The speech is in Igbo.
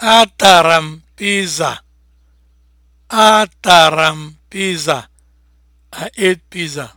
ataram m piza. Atara m piza. I ate pizza.